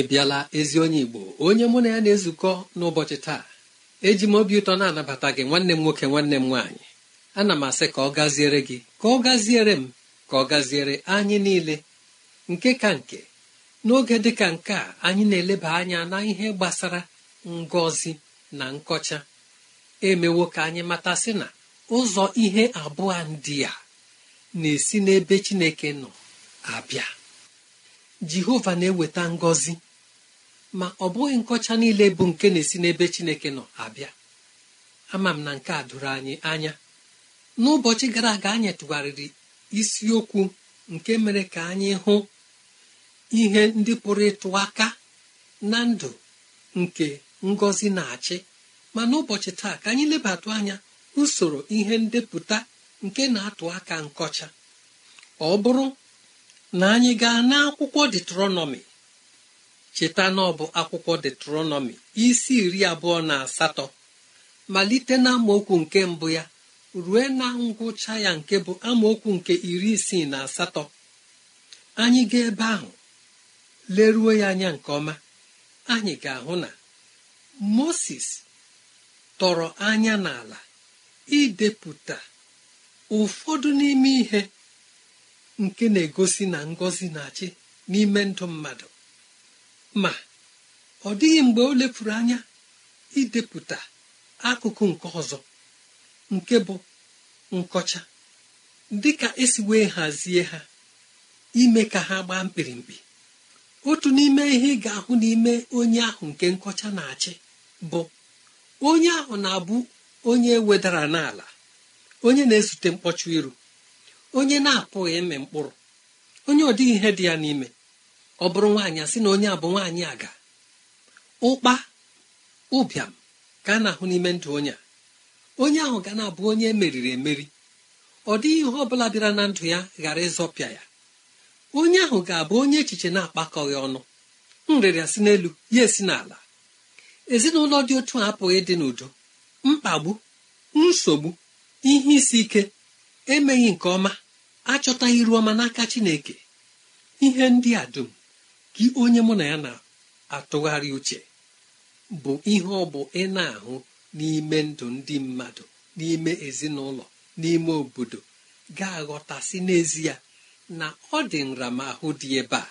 ị bịala ezi onye igbo onye mụ na ya na-ezukọ n'ụbọchị taa eji m obi ụtọ na-anabata gị nwanne m nwoke nwanne m nwaanyị ana m asị ka ọ gaziere gị ka ọ gaziere m ka ọ gaziere anyị niile nke ka nke n'oge dị ka nke a anyị na-eleba anya na ihe gbasara ngọzi na nkọcha emewo ka anyị matasị na ụzọ ihe abụọ ndị a na-esi n'ebe chineke nọ abịa jehova na-eweta ngọzi ma ọ bụghị nkọcha niile bụ nke na-esi n'ebe chineke nọ abịa ama m na nke a doro anyị anya n'ụbọchị gara aga anyị tụgharịrị isiokwu nke mere ka anyị hụ ihe ndị pụrụ ịtụ aka na ndụ nke ngọzi na-achị ma n'ụbọchị taa ka anyị lebatụ anya usoro ihe ndepụta nke na-atụ aka nkọcha ọ bụrụ na anyị gaa n'akwụkwọ detronọmi cheta na ọ bụ akwụkwọ detronọmi isi iri abụọ na asatọ malite na amaokwu nke mbụ ya rue na ngwụcha ya nke bụ amaokwu nke iri isii na asatọ anyị gaa ebe ahụ leruo ya anya nke ọma anyị ga-ahụ na moses tọrọ anya n'ala idepụta ụfọdụ n'ime ihe nke na-egosi na ngọzi na-achị n'ime ndụ mmadụ ma ọ dịghị mgbe o lefuru anya idepụta akụkụ nke ọzọ nke bụ nkọcha dịka esi wee hazie ha ime ka ha gbaa mkpirimkpi otu n'ime ihe ị ga-ahụ n'ime onye ahụ nke nkọcha na-achị bụ onye ahụ na-abụ onye wedara n'ala onye na-ezute mkpọcha iru onye na-apụghị ịmị mkpụrụ onye ọ ihe dị ya n'ime ọ bụrụ nwaanyị asị na onye a bụ nwaanyị aga ụkpa ụbịam ka a na-ahụ n'ime ndụ onye a onye ahụ ga na-abụ onye emeriri emeri ọ dịghị ihe ọ bụla bịara na ndụ ya ghara ịzọpịa ya onye ahụ ga-abụ onye echiche na-akpakọghị ọnụ nrịrịa si n'elu ya esi n'ala ezinụlọ dị otu a apụghị ịdị n'udo mkpagbu nsogbu ihe isi ike emeghị nke ọma achọtaghị iru ọma n'aka chineke ihe ndị a dum gị onye mụ na ya na-atụgharị uche bụ ihe ọ bụ ị na-ahụ n'ime ndụ ndị mmadụ n'ime ezinụlọ n'ime obodo ga-aghọtasị n'ezie na ọ dị nramahụ dị ebe a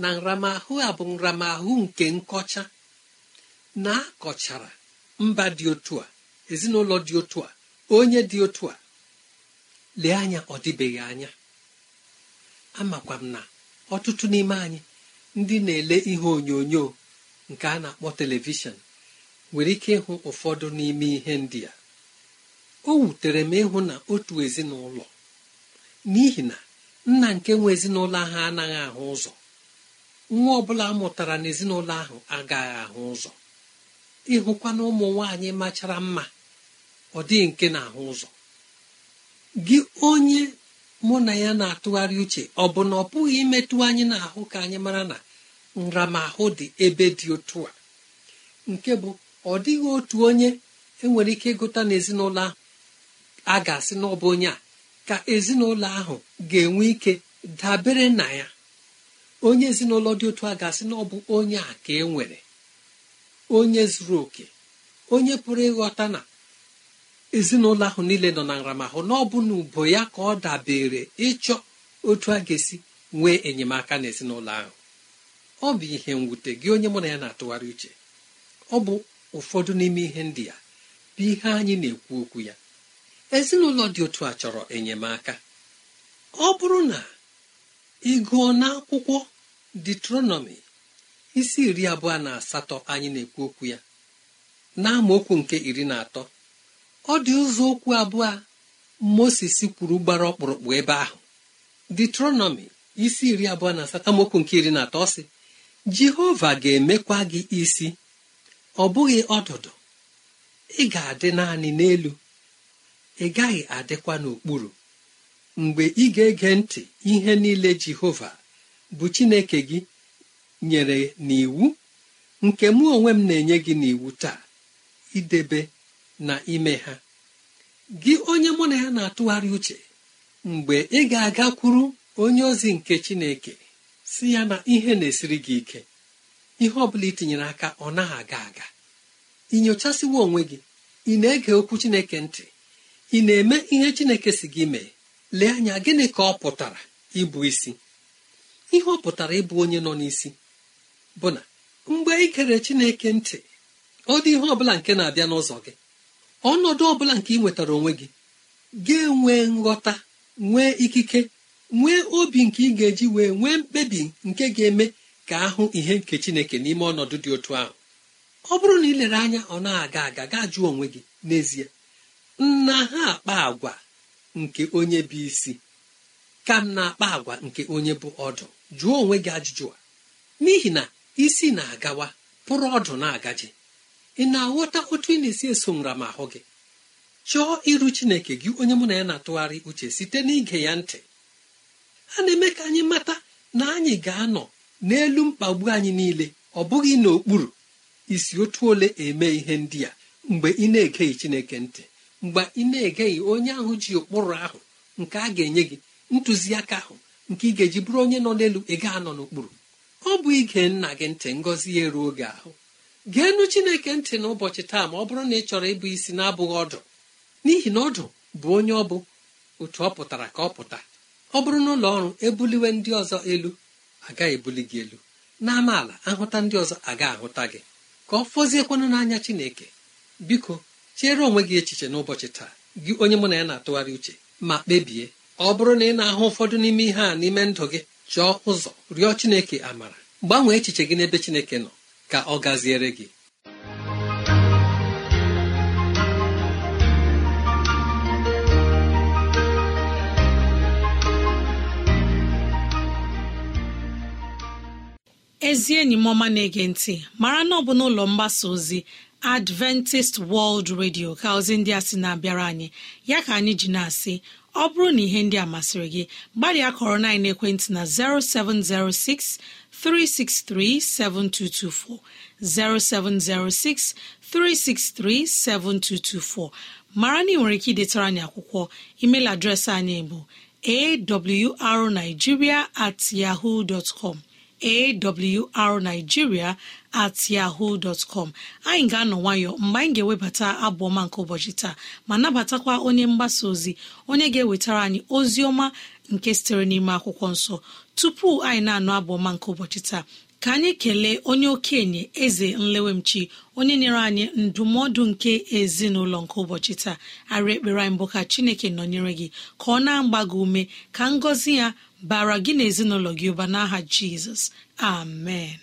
na nramahụ a bụ nramahụ nke nkọcha na-akọchara mba dị otu a ezinụlọ dị otu a onye dị otu a lee anya ọ dịbeghị anya amakwa m na ọtụtụ n'ime anyị ndị na-ele ihe onyonyo nke a na-akpọ telivishọn nwere ike ịhụ ụfọdụ n'ime ihe ndị a o wutere m ịhụ na otu ezinụlọ n'ihi na nna nke nwe ezinụlọ ahụ anaghị ahụ ụzọ nwa ọbụla mụtara n'ezinụlọ ahụ agaghị ahụ ụzọ ịhụkwa na ụmụ nwaanyị machara mma ọ dịghị nke na-ahụ ụzọ gị onye mụ na ya na-atụgharị uche ọ bụ na ọ pụghị imetụ anyị na-ahụ ka anyị mara na nramahụ dị ebe dị otu a nke bụ ọ dịghị otu onye enwere ike ịgụta n'ezinụlọ ahụ a ga-asị na onye a ka ezinụlọ ahụ ga-enwe ike dabere na ya onye ezinụlọ dị otu a ga-asị na onye a ka e nwere onye zuru oke onye pụrụ ịghọta na ezinụlọ ahụ niile nọ na nramahụ na ọ bụ na ubo ya ka ọ dabere ịchọ otu a ga-esi nwee enyemaka n'ezinụlọ ahụ ọ bụ ihe mwute gị onye mụ na ya na-atụgharị uche ọ bụ ụfọdụ n'ime ihe ndị ya bụ ihe anyị na-ekwu okwu ya ezinụlọ dị otu a chọrọ enyemaka ọ bụrụ na ị gụọ akwụkwọ detronomi isi iri abụọ na asatọ anyị na-ekwu okwu ya na amaokwu nke iri na atọ ọ dị ụzọ okwu abụọ moses kwuru gbara ọkpụrụkpụ ebe ahụ detronomi isi iri abụọ na asatọ nke iri na atọ sị jehova ga-emekwa gị isi ọ bụghị ọdụdụ ị ga-adị naanị n'elu ị gaghị adịkwa n'okpuru mgbe ị ga-ege ntị ihe niile jehova bụ chineke gị nyere n'iwu nke mụ onwe m na-enye gị n'iwu taa idebe na ime ha gị onye mụ na ya na-atụgharị uche mgbe ị ga-agakwuru onye ozi nke chineke si ya na ihe na-esiri gị ike ihe ọ bụla itinyere aka ọ naghị aga aga ị nyochasiwa onwe gị ị na-ege okwu chineke ntị ị na-eme ihe chineke si gị mee lee anya gịnị ka ọ pụtara ịbụ isi ihe ọ pụtara ịbụ onye nọ n'isi bụ na mgbe ị gere chineke ntị ọ dị ihe ọ bụla nke na-abịa n'ụzọ gị ọnọdụ ọbụla nke ị nwetara onwe gị ga-enwe nghọta nwee ikike nwee obi nke ị ga-eji wee nwee mkpebi nke ga-eme ka ahụ ihe nke chineke n'ime ọnọdụ dị otu ahụ ọ bụrụ na ị lere anya ọ na-aga aga gaa jụọ onwe gị n'ezie nna ha akpa agwa nke onye bụ isi ka m na-akpa agwa nke onye bụ ọdụ jụọ onwe gị ajụjụ a n'ihi na isi na-agawa pụrụ ọdụ na-agaji ị na-aghọta otu ị na-esi eso nra ma ahụ gị chọọ iru chineke gị onye mụ na ya na-atụgharị uche site n'ige ya ntị a na-eme ka anyị mata na anyị ga-anọ n'elu mkpagbu anyị niile ọ bụghị n'okpuru isi otu ole eme ihe ndị a mgbe ị na-egeghị chineke ntị mgbe ị na-egeghị onye ahụ ji ụkpụrụ ahụ nke a ga-enye gị ntụziaka ahụ nke ị ga-eji bụrụ onye nọ n'elu ị ga-anọ n'okpuru ọ bụ ige nna gị ntị ngọzi ya eruo oge ahụ geenu chineke ntị n'ụbọchị taa ma ọ bụrụ na ị chọrọ ịbụ isi na-abụghị ọdụ n'ihi na ọdụ bụ onye ọ bụ otu ọ pụtara ka ọ pụta ọ bụrụ na ụlọ ọrụ ebuliwe ndị ọzọ elu agaghị ebuli gị elu n'amaala ahụta ndị ọzọ aga ahụta gị ka ọ fọziekwanụ n'anya chineke biko chere onwe gị echiche n'ụbọchị taa gị onye mụ na ya na-atụgharị uche ma kpebie ọ bụrụ na ị na-ahụ ụfọdụ n'ime ihe a n'ime ndụ gị chọọ ụzọ rịọ chineke amara gbanwee echiche gị n'ebe chineke nọ ka ọ gaziere gị ezi enyi m ọma na-ege ntị mara na ọ bụ n'ụlọ mgbasa ozi adventist world radio ka ozi ndị a sị na-abịara anyị ya ka anyị ji na-asị ọ bụrụ na ihe ndị a masịrị gị gbalịa kọrọ na ekwentị na 0706 363-7224, 0706 363-7224. mara na ị nwere ike idetara anyị akwụkwọ email adreesị anyị bụ arigiria at yahoo dot com awrnigeria yahoo dot anyị ga-anọ nwayọ mgbe anyị ga-ewebata abụọma nke ụbọchị taa ma nabatakwa onye mgbasa ozi onye ga-ewetara anyị ozi ọma nke sitere n'ime akwụkwọ nsọ tupu anyị na-anụ abụ ọma nke ụbọchị taa ka anyị kelee onye okenye eze nlewemchi onye nyere anyị ndụmọdụ nke ezinụlọ nke ụbọchị taa arị ekpere anyị mbụ ka chineke nọnyere gị ka ọ na-agba gị ume ka ngọzi ya bara gị na ezinụlọ gị ụba n'aha jizọs amen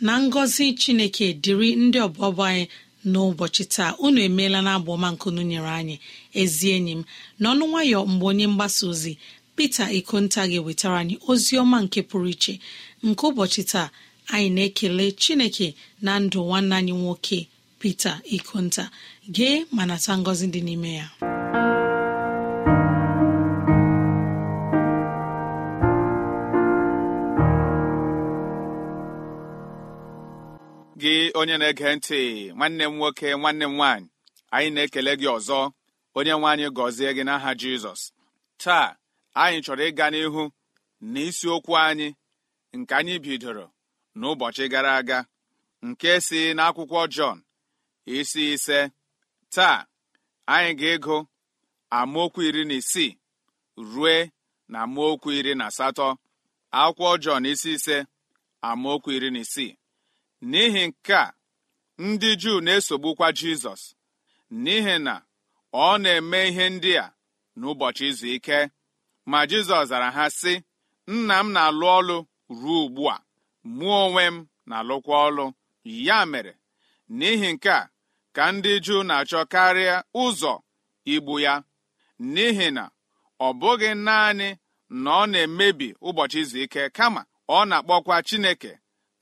na ngọzi chineke dịrị ndị ọbọbọ anyị n'ụbọchị taa unu emeela na abụọma nkunu nyere anyị ezi enyi m n'ọnụ nwayọ mgbe onye mgbasa ozi pete ikonta ga-ewetara anyị ozi ọma nke pụrụ iche nke ụbọchị taa anyị na-ekele chineke na ndụ nwanne anyị nwoke pete ikonta gee ma nata ngọzi dị n'ime ya gị onye na-ege ntị nwanne m nwoke nwanne m nwanyị anyị na-ekele gị ọzọ onye nwe gọzie gị n'aha jizọs taa anyị chọrọ ịga n'ihu na isiokwu anyị nke anyị bidoro n'ụbọchị gara aga nke si n'akwụkwọ jọn isi ise taa anyị ga-ego amaokwu iri na isii rue na amaokwu iri na asatọ akwụkwọ jọn isi ise amaokwu iri na isii n'ihi nke a ndị juu na-esogbukwa jizọs n'ihi na ọ na-eme ihe ndị a n'ụbọchị izu ike ma jizọs zara ha sị nna m na-alụ ọlụ ruo ugbu a mụọ onwe m na-alụkwa ọlụ ya mere n'ihi nke a ka ndị juu na-achọ karịa ụzọ igbu ya n'ihi na ọ bụghị naanị na ọ na-emebi ụbọchị izu ike kama ọ na-akpọkwa chineke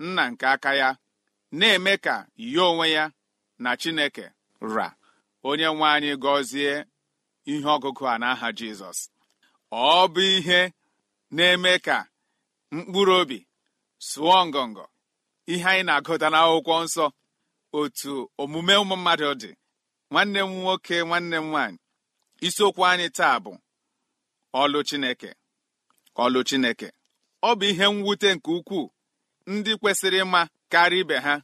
nna nke aka ya na-eme ka ya onwe ya na chineke ra onye nwe anyị gọzie ihe ọgụgụ a n'aha jizọs ọ bụ ihe na-eme ka mkpụrụ obi sụọ ngọngọ ihe anyị na-agụta n'akwụkwọ nsọ otu omume ụmụ mmadụ dị nwanne m nwoke nwanne m nwaanyị isiokwu anyị taa bụ ọlụ chineke ọlụ chineke ọ bụ ihe mwute nke ukwuu ndị kwesịrị ịma karịa ibe ha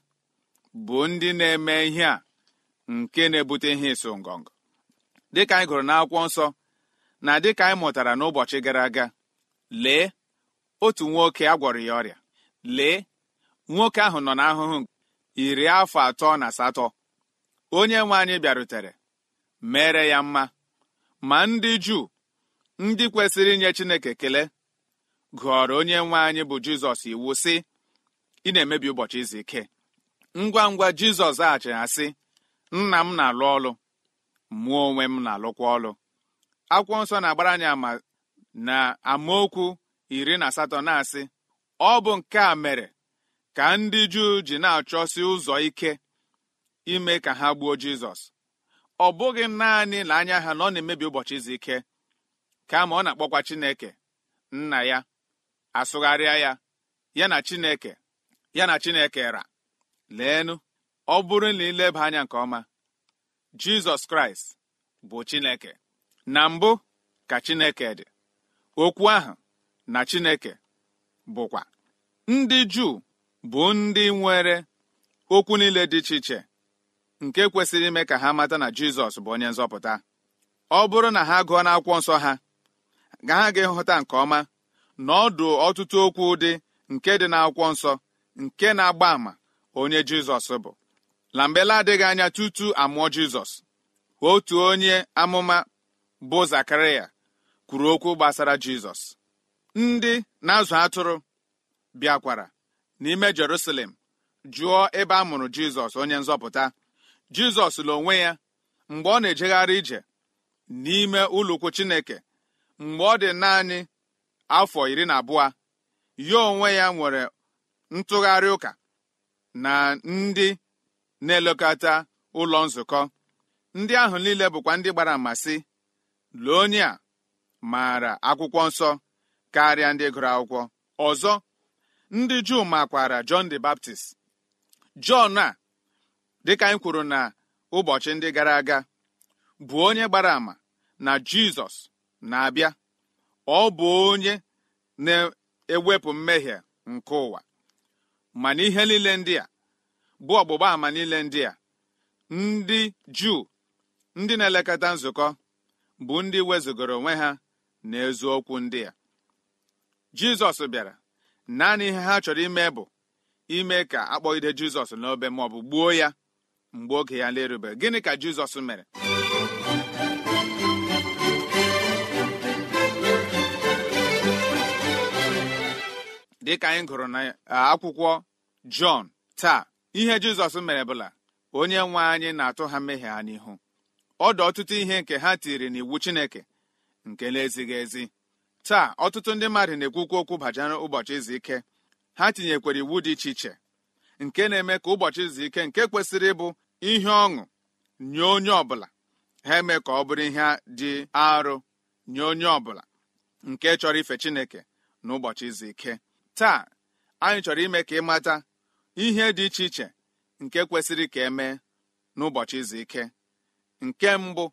bụ ndị na-eme ihe a nke na-ebute ihe ịsụ ngọngọ dịka anyị gụrụ n'akwụkwọ nsọ na dịka anyị mụtara n'ụbọchị gara aga lee otu nwoke a gwọrọ ya ọrịa lee nwoke ahụ nọ n'ahụhụ iri afọ atọ na asatọ onye nwe anyị bịarutere mere ya mma ma ndị juu ndị kwesịrị inye chineke kele gụọrọ onye nwe anyị bụ jizọs iwu sị ị na-emebi ụbọchị izu ike ngwa ngwa jizọs zaghachiri asị nna m na-alụ ọlụ mụọ onwe m na-alụkwa ọlụ akwụkwọ nsọ na-agbara anyị ama na amaokwu iri na asatọ na-asị ọ bụ nke a mere ka ndị juu ji na-achọsi ụzọ ike ime ka ha gbuo jizọs ọ bụghị naanị na anya ha na ọ na-emebi ụbọchị izu ike kama ọ na-akpọkwa chineke nna ya asụgharịa ya ya na chineke ya na chineke ra leenụ ọ bụrụ na ileba anya nke ọma jizọs kraịst bụ chineke na mbụ ka chineke dị okwu ahụ na chineke bụkwa ndị juu bụ ndị nwere okwu niile dị iche iche nke kwesịrị ime ka ha mata na jizọs bụ onye nzọpụta ọ bụrụ na ha gụọ n'akwụkwọ nsọ ha ga ha ga nke ọma na ọtụtụ okwu dị nke dị n'akwụkwọ nsọ nke na-agba àmà onye jizọs bụ na adịghị anya tutu amụọ jizọs otu onye amụma bụ Zakaria, kwuru okwu gbasara jizọs ndị na-azụ atụrụ bịakwara n'ime jerusalem jụọ ebe a mụrụ jizọs onye nzọpụta jizọs la ya mgbe ọ na-ejegharị ije n'ime ụlọukwu chineke mgbe ọ dị naanị afọ iri na abụọ ya onwe ya nwere ntụgharị ụka na ndị na-elekọta ụlọ nzukọ ndị ahụ niile bụkwa ndị gbara ama lee a maara akwụkwọ nsọ karịa ndị gụrụ akwụkwọ ọzọ ndị juu makwara Jọn the Baptist Jọn a dịka anyị kwuru na ụbọchị ndị gara aga bụ onye gbara ama na Jizọs na-abịa ọ bụ onye na-ewepụ mmehie nke ụwa mana ihe niile ndị a bụ ọgbụgba ama niile ndị a ndị juu ndị na-elekọta nzukọ bụ ndị wezụgoro onwe ha na ezu okwu ndị a jizọs bịara naanị ihe ha chọrọ ime bụ ime ka akpọgide jizọs n'obe ma ọ bụ gbuo ya mgbe oge ya na gịnị ka jizọs mere dịka anyị gụrụ na akwụkwọ jọn taa ihe jizọs mere bụla onye nwe anyị na-atụ ha mmehie ha n'ihu ọdụ ọtụtụ ihe nke ha tiri n'iwu chineke nke na-ezighị ezi taa ọtụtụ ndị mmadụ na-ekwukwu okwu bajara ụbọchị izu ike ha tinyekwara iwu dị iche iche nke na-eme ka ụbọchị izu ike nke kwesịrị ịbụ ihe ọṅụ nye onye ọbụla ha eme ka ọ bụrụ ihe dị arụ nye onye ọbụla nke chọrọ ife chineke na ụbọchị izu ike taa anyị chọrọ ime ka ịmata ihe dị iche iche nke kwesịrị ka emee n'ụbọchị izu ike nke mbụ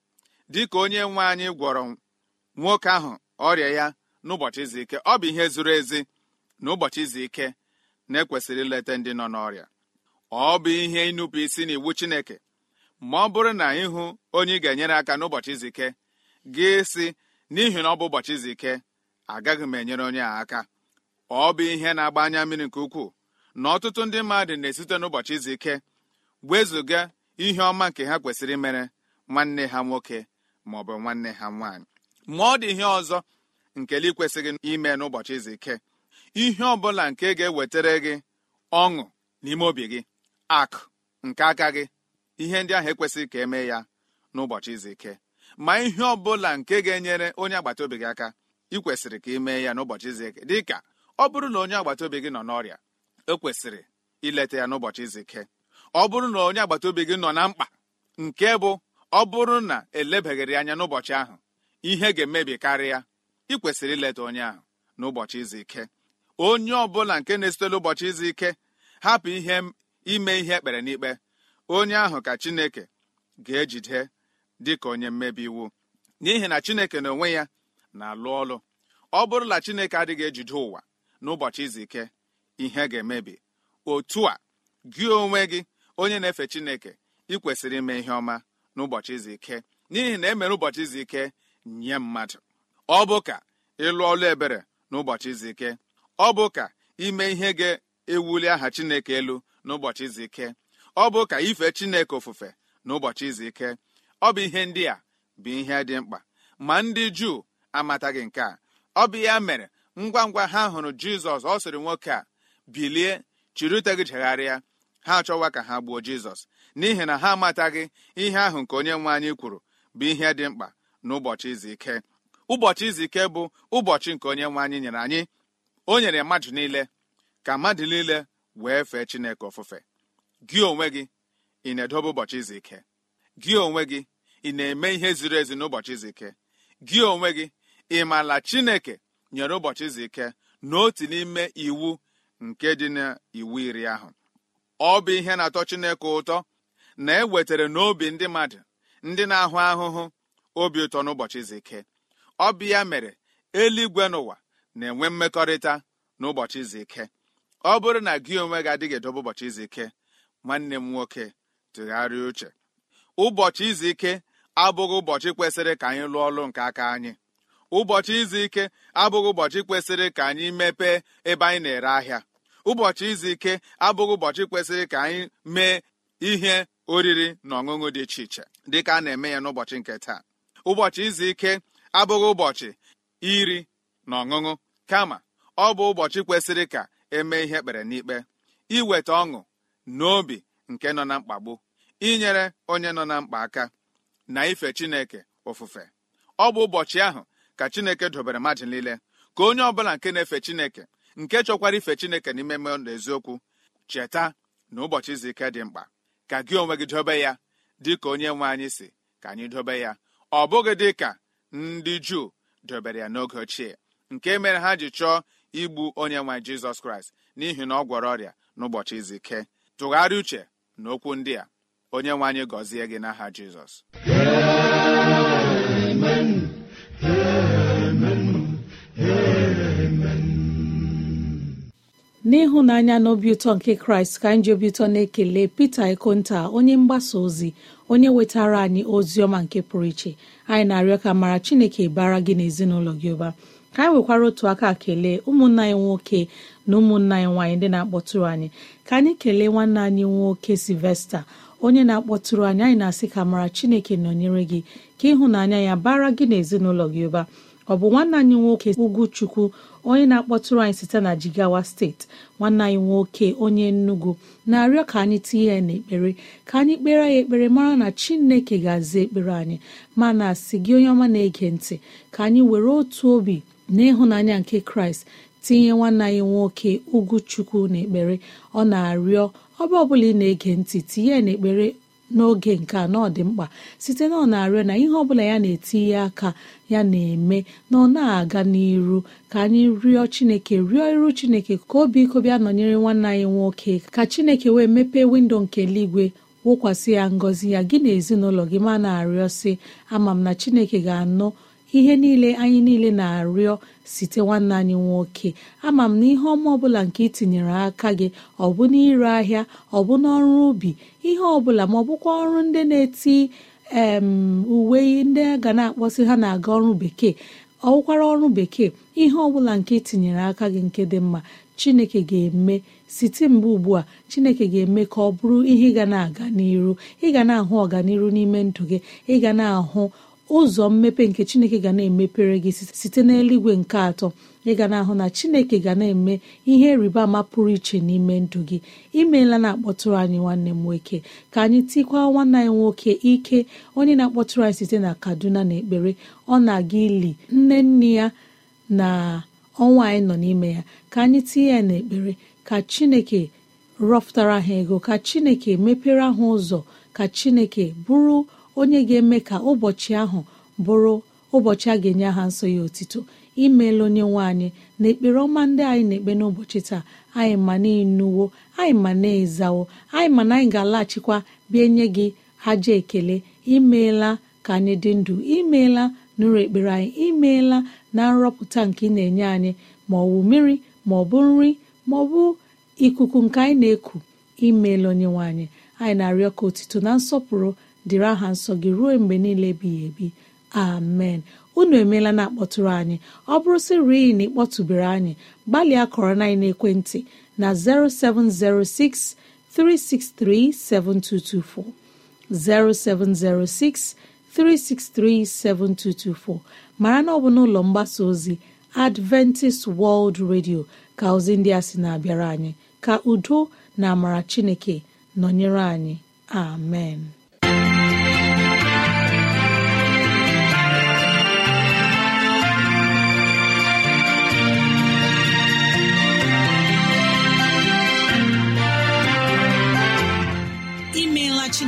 dịka onye nwe anyị gwọrọ nwoke ahụ ọrịa ya n'ụbọchị izu ike ọ bụ ihe zuru ezi na ụbọchị izu ike na-ekwesịrị ileta ndị nọ n'ọrịa ọ bụ ihe ịnụpụ isi n'iwu Chineke ma ọ bụrụ na ịhụ onye ị ga-enyere aka n'ụbọchị izu ike gị si n'ihi na ọ bụ ụbọchị izu ike agaghị m enyere onye a aka ọ bụ ihe na-agba anya mmiri nke ukwuu na ọtụtụ ndị mmadụ na-esite n'ụbọchị izu ike wezụga ihe ọma nke ha kwesịrị mere nwanne ha nwoke ma ọ bụ nwanne ha nwanyị ma ọ dị ihe ọzọ nkele kwesịghị ime n'ụbọchị izu ike ihe ọ bụla nke ga-ewetara gị ọṅụ n'ime obi gị akụ nke aka gị ihe ndị ahụ ekwesịghị ka emee ya n'ụbọchị izu ike ma ihe ọ bụla nke ga-enyere onye agbata obi gị aka ị kwesịrị ka ị mee ya n'ụbọchị izu ike dị ka ọ bụrụ na onye agbata obi gị nọ n'ọrịa ekwesịrị ileta ya n'ụbọchị izu ike ọ bụrụ na onye agbata obi gị nọ na mkpa nke bụ ọ bụrụ na elebaghịrị anya n'ụbọchị ahụ ihe ga-emebi karịa ịkwesịrị ileta onye ahụ n'ụbọchị izu ike onye bụla nke na-esitela ụbọchị izu ike hapụ ihe ime ihe ekpere n'ikpe onye ahụ ka chineke ga-ejide dị ka onye mmebi iwu n'ihi na chineke na onwe ya na-alụ ọlụ ọ bụrụla chineke adịghị ejide ụwa n'ụbọchị izu ike ihe ga-emebi otu a gị onwe gị onye na-efe chineke ị kwesịrị ime ihe ọma n'ụbọchị izu ike n'ihi na emere ụbọchị izu ike nye mmadụ ọ bụ ka ịlụ ọlụ ebere n'ụbọchị izu ike ọ bụ ka ime ihe ga-ewuli aha chineke elu n'ụbọchị izu ike ọ bụ ka ife chineke ofufe n'ụbọchị izu ike ọ bụ ihe ndị a bụ ihe dị mkpa ma ndị juu amataghị nke a ọ bụ ya mere ngwa ngwa ha hụrụ jizọs ọ sịrị nwoke a bilie chịrị ute gị chegharịa ha achọwa ka ha gbuo jizọs n'ihi na ha amataghị ihe ahụ nke onye nwe anyị kwuru bụ ihe dị mkpa n'ụbọchị izu ike ụbọchị izu ike bụ ụbọchị nke onye nwe anyị nyere anyị o nyere mmadụ niile ka mmadụ niile wee fee chineke ofufe gị onwe gị ị na-edobe ụbọchị izu ike gị onwe gị ị na-eme ihe ziri ezi n'ụbọchị izike ike gị onwe gị ị maala chineke nyere ụbọchị izu ike na otu n'ime iwu nke dị n'iwu iri ahụ ọ bụ ihe na-atọ Chineke ụtọ na ewetara n'obi ndị mmadụ ndị na-ahụ ahụhụ obi ụtọ n'ụbọchị izu ike ọ bụ ya mere eluigwe n'ụwa na-enwe mmekọrịta n'ụbọchị izu ike ọ bụrụ na gị onwe gị adịghị edobe ụbọchị izu ike nwanne m nwoke tụgharịa uche ụbọchị izu ike abụghị ụbọchị kwesịrị ka anyị lụọ ọlụ nke aka anyị ụbọchị izu ike abụghị ụbọchị kwesịrị ka anyị mepee ebe anyị na-ere ahịa ụbọchị izu ike abụghị ụbọchị kwesịrị ka anyị mee ihe oriri na ọṅụṅụ dị iche iche dịka a na-eme ya n'ụbọchị nke taa ụbọchị izu ike abụghị ụbọchị iri na ọṅụṅụ kama ọ bụ ụbọchị kwesịrị ka eme ihe ekpere n'ikpe iweta ọṅụ n'obi nke nọ na mkpagbu inyere onye nọ na mkpa aka na ife chineke ofufe ọ bụ ụbọchị ahụ ka chineke dobere mmadụ niile ka onye ọbụla nke na-efe chineke nke chọkwara ife chineke n'ime mmadụ eziokwu cheta na ụbọchị izu ike dị mkpa ka gị onwe gị dobe ya dị ka onye nwe anyị si ka anyị dobe ya ọ bụghị dị ka ndị juu dobere ya n'oge ochie nke mere ha ji chọọ igbu onye nwe jizọs kraịst n'ihi na ọ gwọrọ ọrịa n'ụbọchị izu ike tụgharịa uche na okwu ndị a onye nwe anyị gọzie gị n'aha jizọs n'ịhụnanya na obi ụtọ nke kraịst ka anyị ji obi ụtọ na-ekele pete ikonta onye mgbasa ozi onye wetara anyị ozi ọma nke pụrụ iche anyị na-arịọ ka mara chineke bara gị na ezinụlọ gị ụba ka anyị nwekwara otu aka kelee ụmụnna anyị nwoke na ụmụnna anyị nwaanyị ndị na-akpọtụrụ anyị ka anyị kelee nwanne anyị nwoke silvesta onye na-akpọtụrụ anyị anyị na-asị ka mara chineke nọnyere gị ka ịhụnanya ya bara gị n'ezinụlọ gị ụba ọ bụ nwanne anyị nwoke ugwuchukwu onye na-akpọtụrụ anyị site na Jigawa steeti nwanne anyị nwoke onye nnugwu na-arịọ ka anyị tinye ya n'ekpere ka anyị kpere ya ekpere mara na Chineke ga-aza ekpere anyị ma na-asị gị onye ọma na-ege ntị ka anyị were otu obi na ịhụnanya nke Kraịst tinye nwanne anyị nwoke na ekpere ọ na-arịọ ọba ọbụla ị na-ege ntị tinye n'ekpere n'oge nke a dị mkpa site na ọ na-arịọ na ihe ọbụla ya na-etinye aka ya na-eme na ọ na-aga n'iru ka anyị rịọ chineke rịọ iru chineke ka obi iko nọnyere nwanne anyị nwoke ka chineke wee mepee windo nke eluigwe wụkwasị ya ngọzi ya gị na ezinụlọ gị ma na-arịọ sị ama m na chineke ga-anụ ihe niile anyị niile na-arịọ site nwanne anyị nwoke ama m na ihe ọma ọbụla nke itinyere aka gị ọ bụ n'ire ahịa ọ bụ n'ọrụ ubi ihe ọbụla ma ọ bụkwa ọrụ ndị na-eti uwe ndị ga na-akpọsị ha na-aga ọrụ bekee ọ ọrụ bekee ihe ọbụla nke itinyere aka gị nke dị mma chineke ga-eme site mgbe ugbu a chineke ga-eme ka ọ bụrụ ihe ị ga na-aga n'iru ị ga na-ahụ ọganiru n'ime ndụ gị ị ga na-ahụ ụzọ mmepe nke chineke ga na-emepere gị site n'eluigwe nke atọ ị ga na-ahụ na chineke ga na-eme ihe rịba ama pụrụ iche n'ime ndụ gị imeela na-akpọtụrụ anyị nwanne m nwoke ka anyị tikwa nwanne anyị nwoke ike onye na-akpọtụrụ anyị site na kaduna na ekpere ọ na-aga ili nne nne ya na ọnwa anyị nọ n'ime ya ka anyị tinye ya n'ekpere ka chineke rọpụtara ha ego ka chineke mepere ha ụzọ ka chineke bụrụ onye ga-eme ka ụbọchị ahụ bụrụ ụbọchị a ga-enye aha nsọ ya otito imeela onye nwe anyị na ekpere ọma ndị anyị na-ekpe n'ụbọchị taa anyị ma na-enuwo anyị ma na-ezawo anyị ma na anyị ga-alaghachikwa bịa nye gị aja ekele imeela ka anyị dị ndụ imeela nụrụ ekpere anyị imeela na nrọpụta nke ị na-enye anyị ma ọ bụ mmiri ma ọ bụ nri ma ọ bụ ikuku nke anyị na-eku imeela onye nwe anyị anyị na-arịọ ka otito na nsọpụrụ dịrị aha nsọ gị ruo mgbe niile ebighị ebi amen unu emeela na akpọtụrụ anyị ọ bụrụ sị na ịkpọtụbere anyị gbalịa kọrọ na ekwentị na 0706 363 7224 0706 363 7224 mara na ọ bụ n'ụlọ mgbasa ozi Adventist World Radio ka ozi ndị a sị na-abịara anyị ka udo na amara Chineke nọnyere anyị amen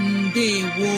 ndewo